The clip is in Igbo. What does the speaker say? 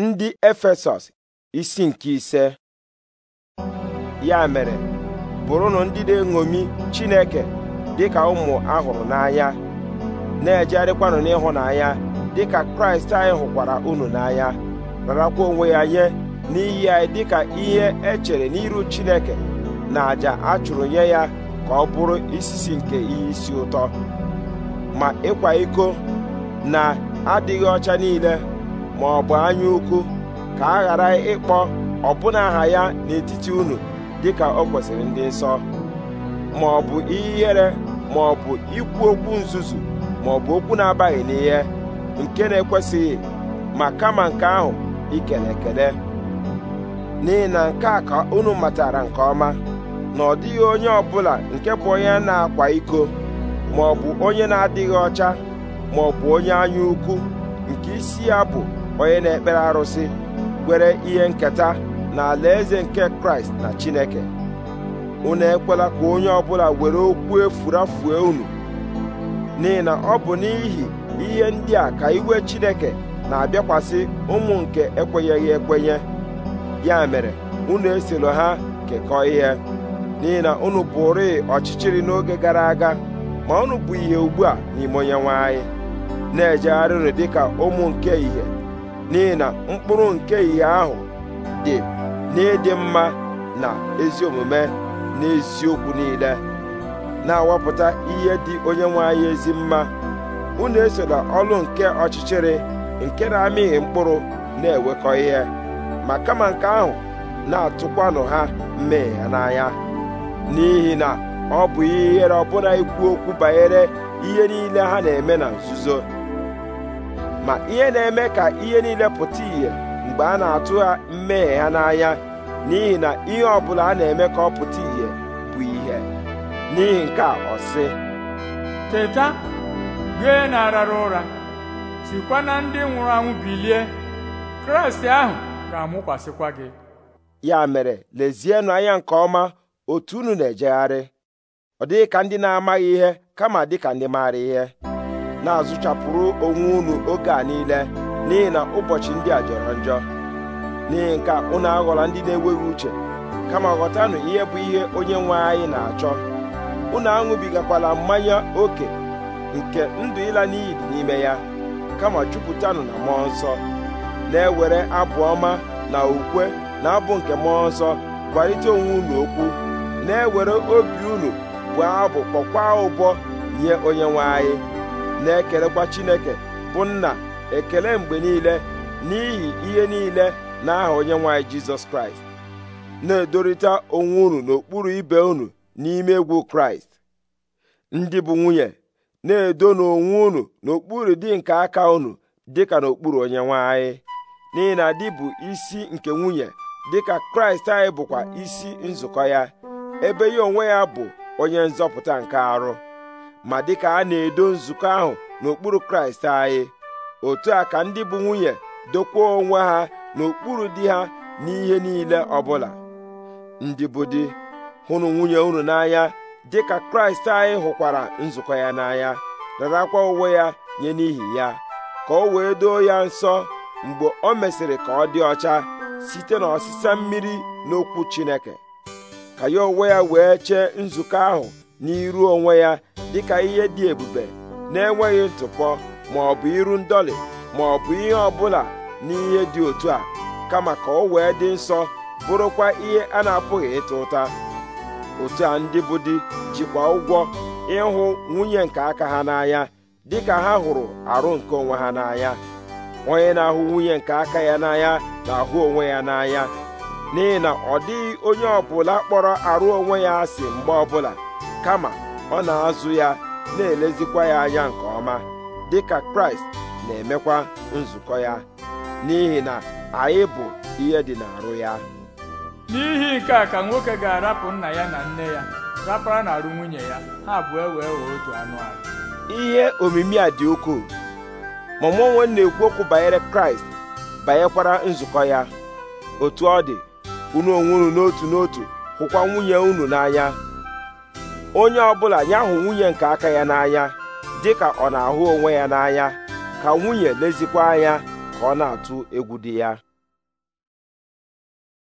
ndị efesọs isi nke ise ya mere bụrụnụ ndị na-eṅomi chineke dịka ụmụ ahụrụ n'anya na-ejegharịkwanụ n'ịhụnanya dịka kraịst anyị hụkwara unu n'anya rarakwa onwe ya nye n'iyi anyị dịka ihe echere n'iru chineke na àjà a chụrụ nye ya ka ọ bụrụ isisi nke ihe isi ụtọ ma ịkwa iko na adịghị ọcha niile ma ọ bụ anya ukwu ka a ghara ịkpọ ọbụna aha ya n'etiti unu dịka ọ kwesịrị ndị nsọ ma ọ bụ ihere ma ọ bụ ikwu okwu nzuzu ma ọ bụ okwu na-abaghị n'ihe nke na-ekwesịghị ma kama nke ahụ ikele ekele n'ihi na nke a ka unu matara nke ọma na ọ dịghị onye ọbụla nke bụ onye na-akwa iko ma ọ bụ onye na-adịghị ọcha ma ọ bụ onye anya ukwu nke isi ya bụ onye na-ekpere arụsị kwere ihe nketa na eze nke kraịst na chineke unu ekwela ka onye ọbụla were okwu efurafue unu n'ihi na ọ bụ n'ihi ihe ndị a ka iwe chineke na-abịakwasị ụmụ nke ekwenyeghị ekwenye ya mere unu esilo ha kekọọ ihe n'ihi na unu bụrụ ọchịchịrị n'oge gara aga ma unu bụ ihe ugbu a n'ime onyenwe anyị na dị dịka ụmụ nke ihe n'ihi na mkpụrụ nke ihe ahụ dị n'ịdị mma na ezi omume na eziokwu niile na-awapụta ihe dị onye nwe ezi mma unu esola ọlụ nke ọchịchịrị nke na-amịghị mkpụrụ na-ewekọ ihe ma kama nke ahụ na-atụkwanụ ha mmehie n'anya n'ihi na ọ bụ ihere ọbụla ikwu okwu banyere ihe niile ha na-eme na nzuzo ma ihe na-eme ka ihe niile pụta ìhè mgbe a na-atụ ha mmehie ha n'anya n'ihi na ihe ọ bụla a na-eme ka ọ pụta ìhè bụ ihe n'ihi nke a ọ sị teta gee na arara ụra sikwa na ndị nwụrụ anwụ bilie kraịst ahụ ga-amụkwasịkwa gị ya mere lezienụ anya nke ọma otu unu na-ejegharị ọ dịghị ka ndị na-amaghị ihe kama dịka ndị maara ihe na-azụchapụrụ onwe unu oge a niile n'ihi na ụbọchị ndị a jọrọ njọ n'ihi nke unu aghọla ndị na-enweghị uche kama ghọtanụ ihe bụ ihe onye nwe anyị na-achọ unu aṅụbigakwala mmanya oke nke ndụ ịla n'iyi dị n'ime ya kama jupụtanụ na mmụọ nsọ na-ewere abụ ọma na ukwe na abụ nke mmụọ nsọ kwalite onwe unu okwu na-ewere obi unu bụ abụ kpọkwa ụbọ nye onye nwe anyị na-ekelekwa Chineke bụ nna ekele mgbe niile n'ihi ihe niile n'aha onyenwe anyị Jizọs Kraịst na-edorịta onwe unu n'okpuru ibe unu n'ime egwu Kraịst ndị bụ nwunye na-edo n'onwe unu n'okpuru di nke aka unu dịka n'okpuru onyenwe anyị n'ihi na di bụ isi nke nwunye dịka Kraịst anyị bụkwa isi nzukọ ya ebe ya onwe ya bụ onye nzọpụta nke arụ ma dịka a na-edo nzukọ ahụ n'okpuru kraịst anyị otu a ka ndị bụ nwunye dokwa onwe ha n'okpuru di ha n'ihe niile ọbụla ndị bụ di hụrụ nwunye unu n'anya dịka kraịst anyị hụkwara nzukọ ya n'anya rarakwa uwe ya nye n'ihi ya ka o wee doo ya nsọ mgbe o mesịrị ka ọ dị ọcha site n'ọsịsa mmiri n'okwu Chineke ka ya onwe ya wee chee nzukọ ahụ n'iru onwe ya dịka ihe dị ebube na-enweghị ntụpọ ma ọ bụ iru ndọlị ma ọ bụ ihe ọbụla n'ihe dị otu a kama ka ọ wee dị nsọ bụrụkwa ihe a na-apụghị ịta ụta otu a ndị bụ di jikwa ụgwọ ịhụ nwunye nke aka ha n'anya dịka ha hụrụ arụ nke onwe ha n'anya onye na-ahụ nwunye nke aka ya n'anya na-ahụ onwe ya n'anya n'ihi na ọ dịghị onye ọbụla kpọrọ arụ onwe ya asị mgbe ọbụla kama ọ na-azụ ya na-elezikwa ya anya nke ọma dịka kraịst na-emekwa nzukọ ya n'ihi na anyị bụ ihe dị n'arụ ya n'ihi nke a ka nwoke ga-arapụ nna ya na nne ya rapara na arụ nwunye ya ha abụọ e wee wee otu anụ ahụ ihe omimi a dị ukwuu ma mụ onwe na-ekwu okwu banyere kraịst banyekwara nzukọ ya otu ọ dị unu onwe unu n'otu n'otu hụkwa nwunye unu n'anya onye ọbụla ya hụ nwunye nke aka ya n'anya dị ka ọ na-ahụ onwe ya n'anya ka nwunye lezikwa anya ka ọ na-atụ egwu dị ya